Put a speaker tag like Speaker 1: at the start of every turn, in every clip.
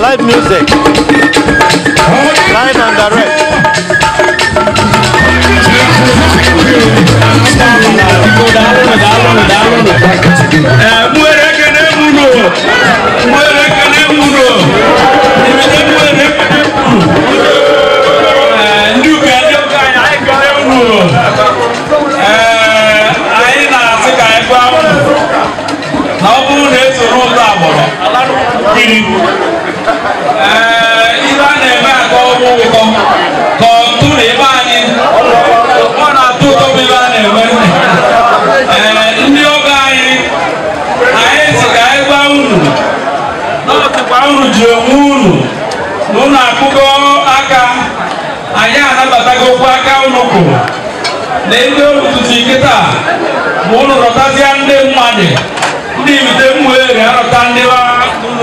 Speaker 1: live music, live and direct.
Speaker 2: Yeah. kiri ɛɛ i b'a nɛ mɛ a kɔ wo kɔ kɔ tu de i b'a ni mana tu tobi i b'a nɛ mɛ ɛɛ ndi o ka ye a ye sigi a ye gba unu n'o ti gba unu jɛ unu n'u na kuko aka a y'a anabata aka unu ko na ebe olu tutu ike taa ma ndị mmadụ ndị ibite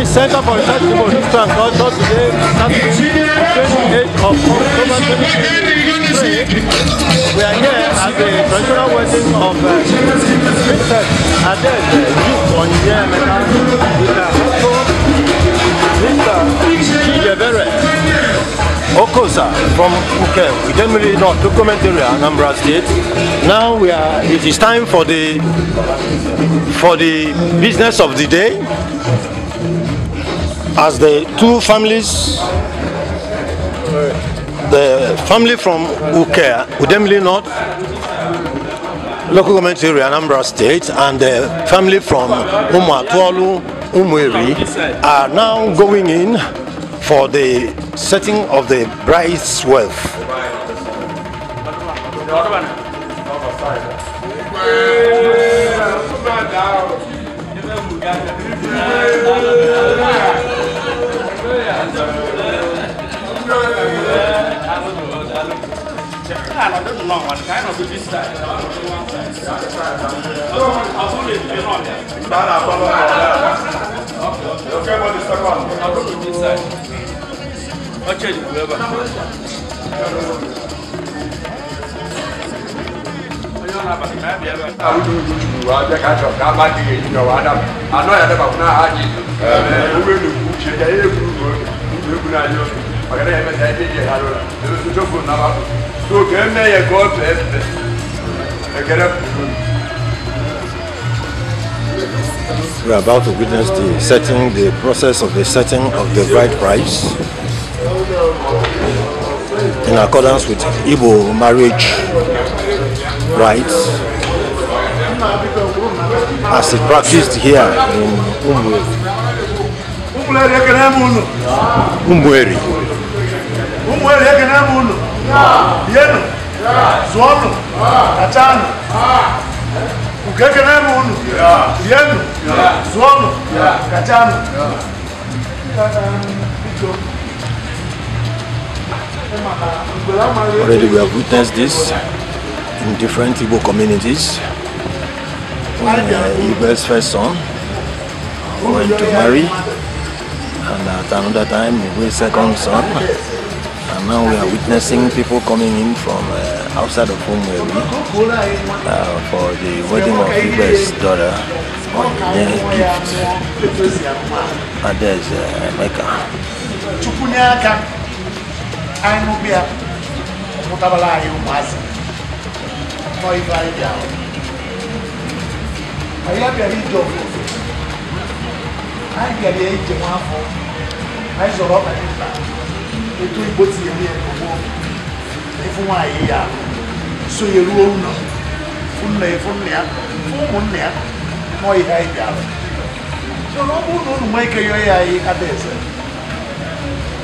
Speaker 2: Jewish Center for Research in Religion and Culture today, Saturday, 28th
Speaker 1: of October 2023. We are here at the traditional wedding of uh, Princess Adele Duke Onyinye Emeka with her husband, Mr. Chijebere Okosa from Uke, Idenmili North, documentary Area, Anambra State. Now we are, it is time for the, for the business of the day. as the two families, the family from Ukea, Udemli North, local government area, Anambra State, and the family from Umuatualu, Umweri are now going in for the setting of the
Speaker 2: bride's wealth. I don't know what kind of this side. I'll put it in on there. Okay, what is the one? I'll put it this side. I'll change it, whoever.
Speaker 3: awudu tutu wa bɛ ka jɔ k'a b'a tigɛ yi jɔ wa dama a n'o yɛrɛ b'a fɔ n'a y'a jɛ ɛɛ u bɛ nugu cɛ ja e ye kuru We are
Speaker 1: about to witness the setting, the process of the setting of the bride price in accordance with Igbo marriage rights, as it practiced here in Umwe. É é um um yake naye munhu umweri umweri yake naye munhu yenu zvono katano ugeke naye mundo, yenu zvono katano Already we have witnessed this in different Igbo communities. When uh, Igbo's first son went to marry, And at another time, we will second son. And now we are witnessing people coming in from uh, outside of home where we uh, for the wedding of Ibe's daughter the gift. And there's uh, Mecca. aí àìsọ̀rọ̀ ọ̀pẹ̀ nípa ètò ìbò ti èmi ẹ̀kọ́ aí ìfún àyíyá so yẹ̀rú òun náà fún nà fún nà fún nà mọ́ aí ìbí àrùn so na ọ bụrụ na unu nwee aí yọọ ya aí ada eze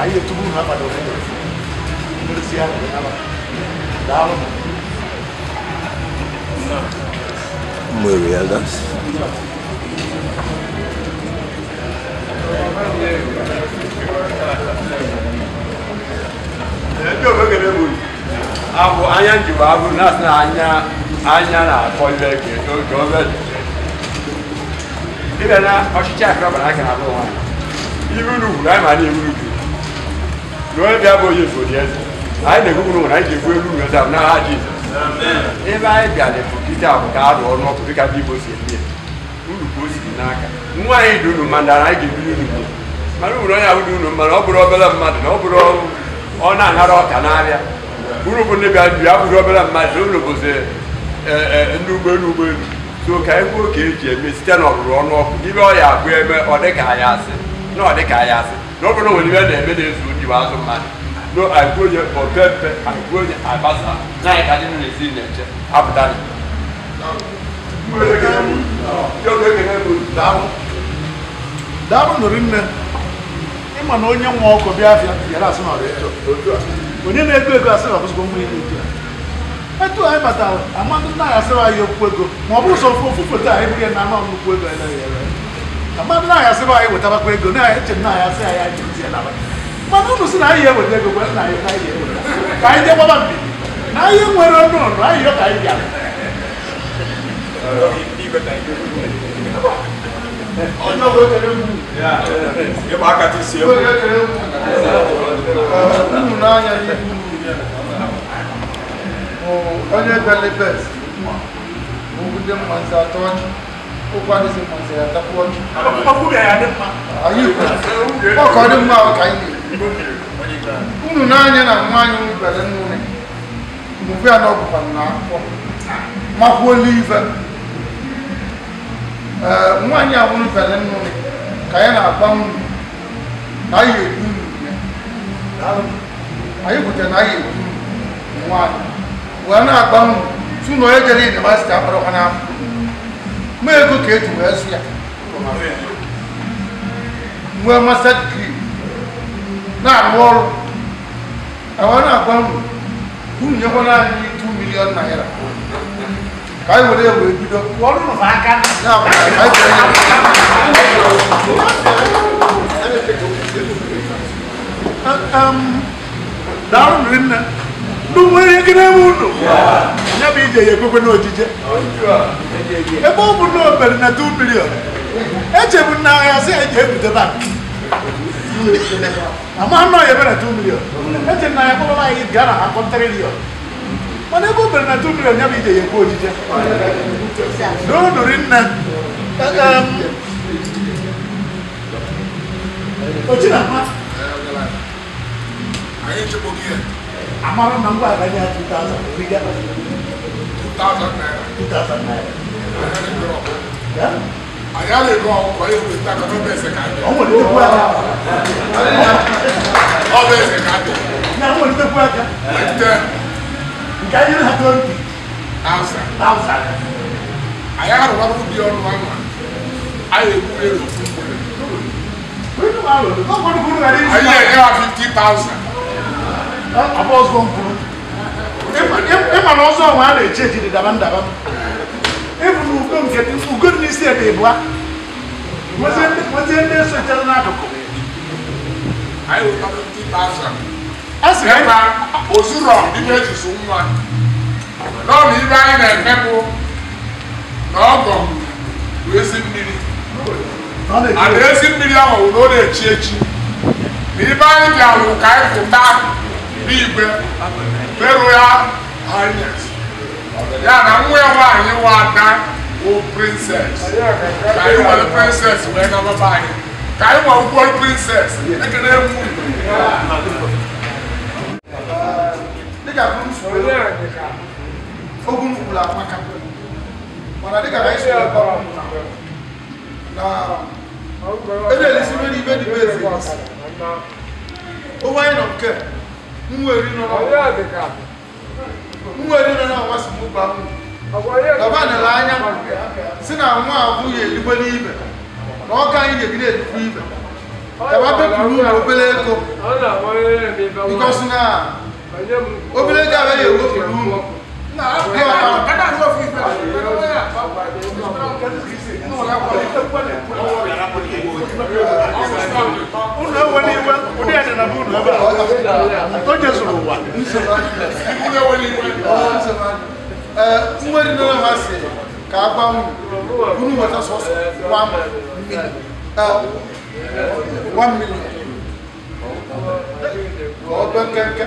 Speaker 1: anyị etubu unu abada obodo aí ya nwere ala daalụ
Speaker 2: nwere ya gasị
Speaker 3: Thank you. abụ anya njikwa abụ na na anya anya na-akọ ibe eke oge obe ibe na ọchịchị akụrọbara aka na-abụ nwaanyị iru n'ugwu anyị ma na iru n'ugwu n'onye bịa bụ onye ifodi eze anyị na n'ụwa anyị ga-egwu n'ụwa ebe jizọs ebe anyị bịa na-efu ka arụ ọrụ ọkụ dịka ndị igbo si eme uru ka o si n'aka nwa anyị dị unu anyị ga-ebiri uru onye ahụ dị unu ọ bụrụ obere mmadụ na ọ bụrụ ọrụ ọ na anara ọka n'ahịa bụrụ ndị bịa ya bụrụ obere mmadụ ụlọ bụzi ndị ụgbọelu ụgbọelu so ka anyị oke eji eme site na ọrụrụ ọnụ ọkụ ibe ọ ya abụ eme ọ dịka anyị asị na ọ dịka asị na ọ ibe na-eme na-ezu ndị bụ azụ mmadụ no agụonye opempe agụonye abasa na anyị ka ndị n'ezi na-eche apụta
Speaker 1: daalụ nụrụ nne ịma na onye nwa ọkụ Biafra bịara asị na onye na-ego ego asị na ọbụzụgo nwa ihe otu a etu anyị batara amadụ nna anyị asịrị anyị okwu ego ma ọ bụ ụzọ ofe ofu foto anyị bụghị na anọ nnukwu ego anyị naghị ere amadụ nna anyị asịrị anyị wetarakwa ego na anyị eche nna anyị asị anyị anyị ntị na mana unu si na anyị eweta ego gwa nna anyị na anyị eweta ka anyị jee gbaba mbibi na anyị nwere ọnụ ọnụ anyị yọ ka anyị
Speaker 2: bịara ọjọ́ wo kẹlẹ́ wù. ẹ bá kàtí sí ẹ. ọjọ́ kẹlẹ́ wù.
Speaker 1: ọ̀hún náà yẹ kí wù mí yẹ. ọjọ́ gbẹlẹ́ bẹ́ẹ̀ sí. mo kú dé mọ̀ sí àtọ́jú. ó bá dé sí mọ̀ sí àtọ́jú. ọkọ bẹ̀rẹ̀ adé ma. ayé ìfẹ́ ọkọ ọdún mọ́ àwọn kàyé. ọ̀hún náà yẹ na mú àyè wù gbẹlẹ́ nù ní. mo fi àná ọkùnrin náà kọ́. máa kú ó lé ìfẹ́ nwaanyị a nwụrụ fere nnụ ka ya na-agba nri na anyị egbu nri anyị kwutere na anyị egbu nri nwaanyị wee na-agba nri tu na onye jere yunivasiti akpọrọkwa n'afọ ma ego ka eji wee zụ ya nwee masta digrii na-arụ ọrụ e wee na-agba nri unu nyekwana anyị 2 milion naira ka anyị were wee bido daalụ rinne ndị nwere ihe na-eme unu ya bụ ehm, ije ya ekwekwe n'ojije ebe ọ bụ na obere na 2 bilion echebu na agha sị eji ebute bank ama anọ ya ebere 2 milion eche na ya kpọbaba anyị gara ha kọntrilion mana ego mere na ntu mmiri ọnya bụ ije ya ekwu ojije n'odori nna ochinama amara na ngwa aganye ya 2000 naira anyị ala ego ọkụkọ ihe weta ka ọ bụ eze ka adị ọ bụ eze ka adị Can you have twenty? Thousand. Thousand. Ayahara wa ló di ọnu ama. Ayé kúrè ló fún kúrè. Wíwú wa lò ló kọ́ kúrú rẹ̀ ní. Ayé ẹ̀ yára fifty thousand. Àbọ̀ ọ̀sọ̀ ń kúrú. Ìmọ̀ náà ọ̀sọ̀ wọn á lè jẹ́ ìdí dàbá ń dàbá. Efu na ugo nke dị ugo dị n'isi ebe ịbụa. Nwezie ndị nso chere n'akụkụ ɛsrɛba osurɔ nipa esusu nwa lɔri ibe anyị na-emekwu na ọgọ wee si mmiri ana ezi mmiri ahụ wụ na ọ na-echi echi na ibe anyị bịarụ ka anyị pụta n'igwe merụ ya hanyes ya na nwa ya nwaanyị nwa ada bụ prinses ka anyị nwere prinses wee nababa anyị ka anyị nwe ụgwọ prinses ekele mụ dịka ogun kwuru amaka mana dịka na isi na-elesiri n'ibe dị ezi owe anyị nọ nke nwere nọ na ọnwa si mụ gba dọba nele anya si na nwa abụghị eligbe n'ibe na ọka anyị ga-ebido elikwe ibe dọba bepụrụ ụlọ obere ego bikọsi na obìnrin tí a bẹ yẹ owó fi dùn ún. Nwere nana ha si ka agbanwe unu nweta sọsọ one million ọdọ kẹkẹ.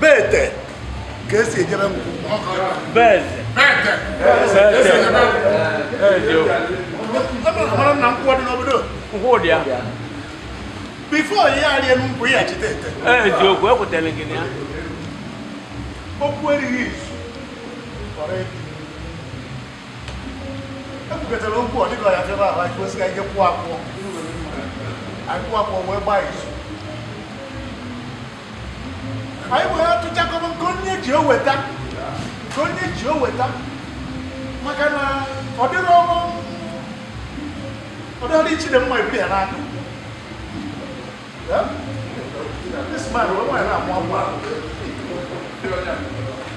Speaker 1: bete ka esi ejere m mara na nkwụkwọ dị n'obodo bifo ihe arịa n'ugwu ya chite ete
Speaker 2: eziokwu ekwetele gị ya
Speaker 1: okwu erighị izu kọrọ ebi ekwugetara okwu ọ dịka ya febe ahụ anyị kwesịghị ike kwụ akwụkwọ anyị kwụ akwụkwọ wee gbaa izu anyị wee tụchakọba nke onye ji oweta nke onye ji oweta maka na ọ dịrị ọrụ ọ dịrị ichi dị mma ebiri ya n'aka This man, we're going to have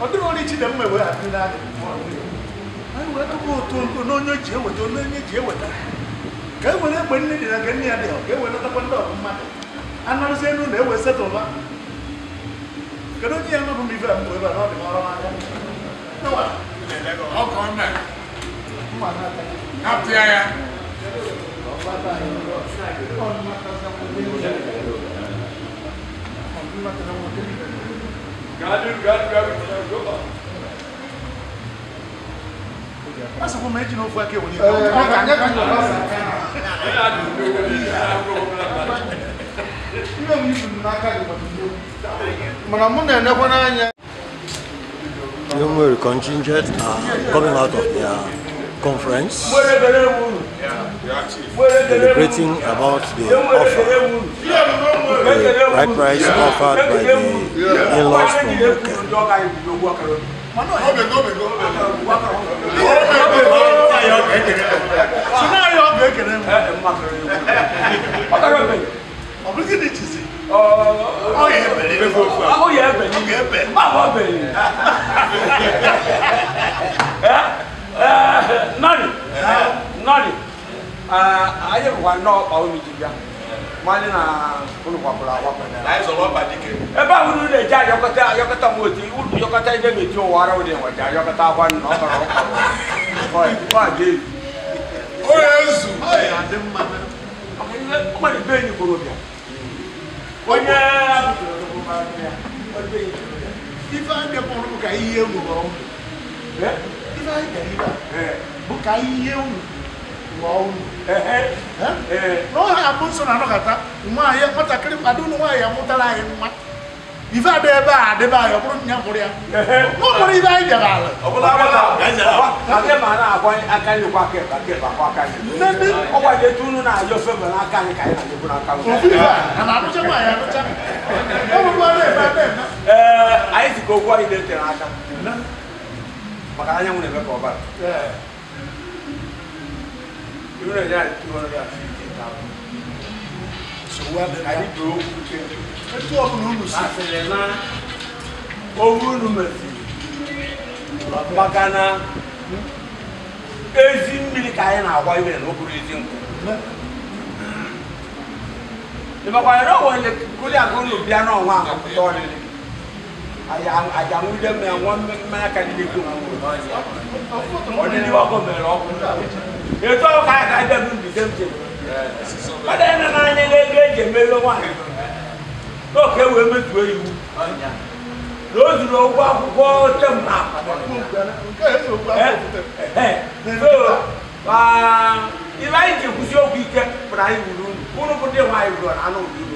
Speaker 1: ọ dịghị onye Chidimma ewere adị n'adị anyị wee tụpụ otu nkụ n'onye ji eweta onye onye ji eweta ka e were egbe nne dị na nke nne ya dị ka e weletakwa ndị ọgụ mmadụ anarụzie enu na ewe setụlba kedu onye ya nọbụ m ife mbụ ebe a n'ọdị ọrụ n'aka Apia ya.
Speaker 3: Thank you. God do, God do everything. Good luck.
Speaker 1: Pasa kwa meji no fuake Young will contingent are coming out of their conference
Speaker 2: deliberating about the offer, the right price offered by the in-laws from Okere.
Speaker 3: Ọ̀bùrúkì ni jìsì. Ó yẹ ẹbẹ̀ ní fún fún. Ó yẹ ẹbẹ̀
Speaker 2: ní. Ó yẹ ẹbẹ̀. Má bọ̀ bẹ̀ ni. Nọ́ọ̀nì. Nọ́ọ̀nì. Ah, ayé wà ná ọ̀pá omi jìbìá wọn ní na olùkọ́kọ́lá wọ́pẹ̀lẹ́. láìsọ lọ́ba dike. ẹ bá wúlú lè já yọkọtẹ yọkọtẹ mu òtí yọkọtẹ ilé mi tí o wà rẹwà dìnyẹn wọjà yọkọtẹ awa nínú ọkọlọ ọkọlọ ọ àdé yìí. ó yẹ zù. ó yẹ adé mma mẹ. ọmọ ní bẹ́ẹ̀ ni kúrò bíà. wọ́n yẹ
Speaker 1: ife ande kpọrọ bụ ka ihe ewuru ọrụ ife ande ka ihe ewuru waulu ehe eh no ha abuso na no kata nwa ye kota kiri adu no wa ya mutala ye nwa ife ada ebe a adịba ya ọ bụrụ nya mụrụ ya
Speaker 2: n'ụmụrụ ibe anyị bịara ala nne ndị
Speaker 1: anarụcha nwaanyị arụcha
Speaker 2: ọbụbụrụ ebe ebe anyị zikọ okwu anyị na-etere aka maka anyanwụ na-eme ka ọbara two hundred and two hundred and fifty thousand. so wa bẹ ba ayi do kutẹ etu ọkùnrin olu si. asẹlẹ na owó nu bagana magana ezi mmiri ka a na-agwa ibe na okpuru ezi nkụ ịmakwa ya na ọwụ ele kuli agụ na obi anụ ọnwa ahụ pụta ọlịlị àjàmúdé mẹ àwọn mẹ́ka ní gbèdó ọdún ní wàá kọ mẹ́rọ ọkùnrin ètò ọkọ àyàká jẹ mi nbí sẹ́ńtẹ̀ ọdún yẹn nana anyi lẹ́gbẹ́ ẹ̀jẹ̀ mẹ́lẹ́ wọn yóò kẹ́ wẹ́ mẹ́tò eyi wù lóòtù lọ wọ akókó tẹ̀ mọ́ àpàtà waa ìlà ìjì kùsì òkú ike pẹ̀lú ayé wùlú wúlò kó dé wọn ayé wùlọ àná òbí wù.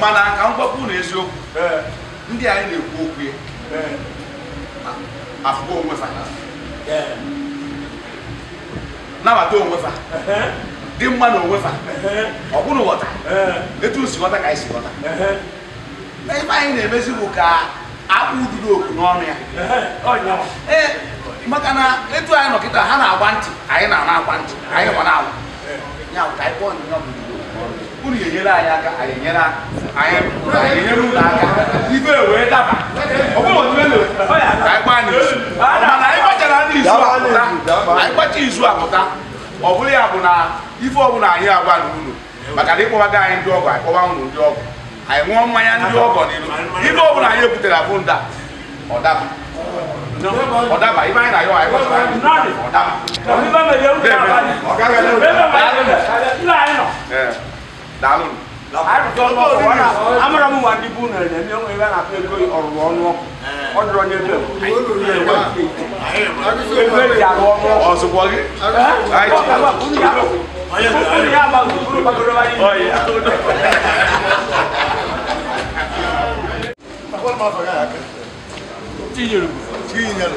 Speaker 2: mana ka m gwakwu na eziokwu ndị anyị na-ekwu okwu ya afụgo onwe fa nabata onwe fa dị mma na onwe fa ọ bụrụ ghọta etu si ghọta ka anyị si ghọta ebe anyị na-emezi bụ ka akpụ ududo oku n'ọnụ ya ee maka na etu anyị nọkịta ha na-agba ntị anyị na-ana agba ntị anyị gwa na-agwa ya ka anyị kpọọ ndị unu enyere anyị aka anyị enyere anyị enyere unu aka ibe wee daba anyị kpacha izu apụta ọ bụrụ ya bụ na ife ọbụla anyị agwa n'ụlọ maka na ịkpọbaga anyị ndị ọgọ anyị kpọba ndị ọgọ anyị ṅụọ mmanya ndị ọgọ n'ilu ife ọbụla anyị ebutere abụ nda ọ daba ọ daba ibe anyị na ya anyị ọ daba ọ gaghị daalụ arụtụ ọnụ ọkụ amara m nwa ndị bụ unere na-eme onwe ebe a na-akpọ ego ọrụrụ ọnụ ọkụ ọ dịrọ n'ebe ebe eji arụ ọnụ ọzụkwọ gị ya amaghị bụrụ gbagoro anyị tinyere tinyere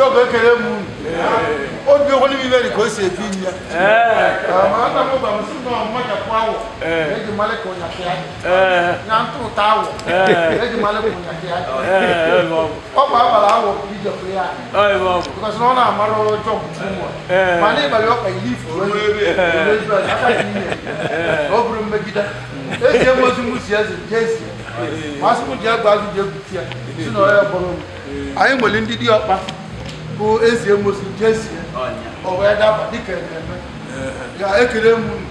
Speaker 1: yóò kékeré mu ó bí owó níbi bẹ́ẹ̀ ni kò ṣe bí ni. àmọ́ àtàwọn bàbá sí náà mọ̀jà kó àwọ̀ lẹ́jì malẹ̀ kò yàn kí á yà ń tó ta àwọ̀ lẹ́jì malẹ̀ kò yàn kí á. ọkọ̀ abala àwọ̀ kì í jẹ pé yà. because náà náà máa lọ́wọ́ jọ bùtù mọ̀ mà ní ìbàlẹ̀ ọkọ̀ yìí
Speaker 2: fòrò yìí fòrò yìí
Speaker 1: ọkùnrin mẹ́gídá èsì ẹ̀
Speaker 2: mọ́tò mú sí ẹ̀sìn jẹ́sì
Speaker 1: màá sì mú jẹ́ gbàgbé jẹ́ bùtù yà sínú ọ̀rẹ́ bọ̀rọ̀ mi àyè mọ̀lẹ́ ń dídí ọ̀pá. bụ ezi emusi jesi o wee daba dịka eme ya ekele m unu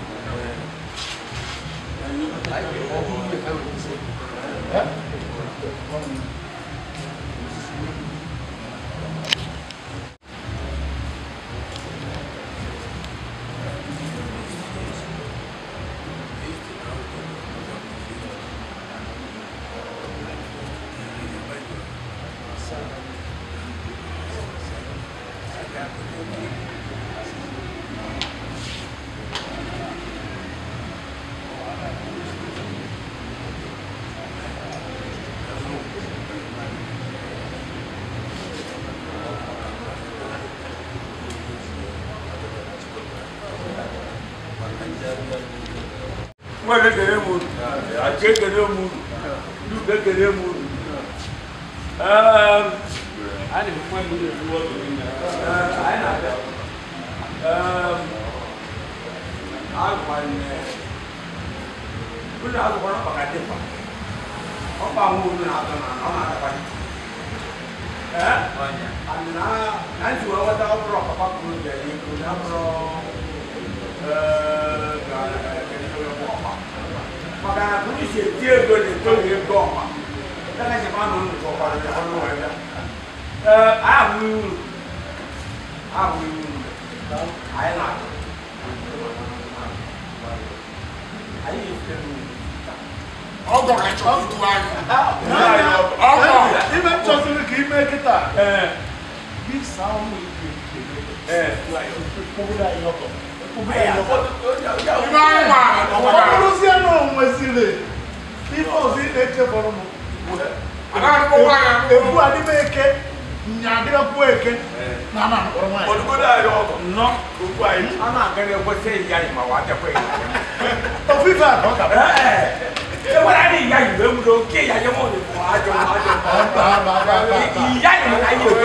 Speaker 2: nwa na-ekele m unu achi ekele m unu duke ekele m unu ụlọ akwụkwọ na ọkpaka dịkwa ọkpa nwa olu na-atọ na ọ na-adakwa na njiwe nghọta ọ bụrụ ọkpapa kwuru dị ego na bụrụ maka na polisi eti ego na eto wee gba ọma ndaka ji ma na unu chọkwara ya ọnụ wee ya ee ahụ uru ahụ uru anyị na-akụ anyị na-efe mmiri ọgọ ka chọrọ
Speaker 1: ntụ anyị ọgọ ime chọsiri ka ime kịta gị saa ụmụ ike ike ike ike ike ike ike ike ike Ibáyìnbá ọ̀pọ̀lọpọ̀ sí ẹnu ọ̀hún ẹ̀sìnlẹ̀ ifọ̀ sí ẹ̀kẹ́ bọ̀rọ̀ mọ̀. Ewu adibe
Speaker 2: eke nyadira ku eke
Speaker 1: na ama nkɔrɔ maa yi. Olugo
Speaker 2: da yɛrɛ wɔkɔ. Nɔ oku ayi. Ama akɛnɛ ɛkɔ sɛ iya yi ma wa tɛ kɔ iya yi. Ofin fɛ akɔ ka bɛ. Ṣé wọ́n á ní ìyá yìí lóhùn ló kí ìyá yẹn mọ̀ ní fún àjọ àjọ. Ìyá yìí ń ayé ìwé.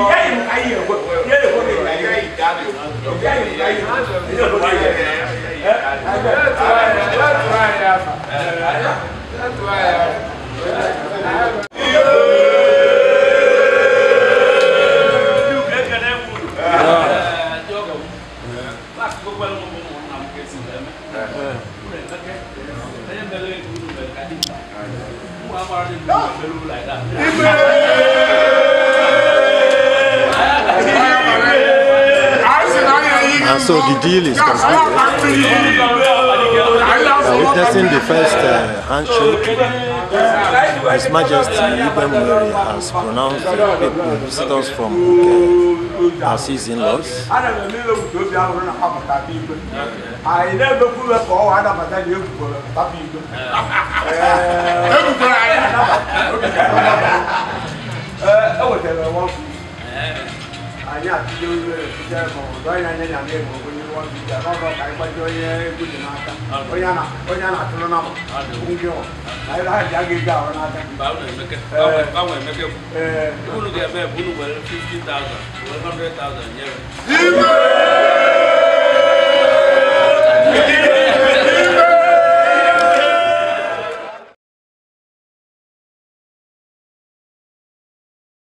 Speaker 2: Ìyá yìí ń ayé ìwé. Ìyá yìí ń ayé ìwé. That's
Speaker 3: why I am. And so the deal is completed.
Speaker 2: Uh, witnessing the first uh, handshake, His Majesty Ibn Mary has pronounced the visitors from UK as his in-laws. Uh, nyɛ atijɛ tijɛ mɔgɔ dɔ yina nyɛ nyamɛ mɔgɔ ko nyɛ wɔn tijɛ k'aw ka kayi kpajɛ yɛ ko jɛnɛ ata o yana o yana tolo na ma o ŋun kɛ o ayi la ja ke ja o n'ata. bawo na mɛkɛ bawo na mɛkɛ fo i b'olu kɛ mɛ bulu fifty thousand wɛrɛ hundred thousand nyɛ.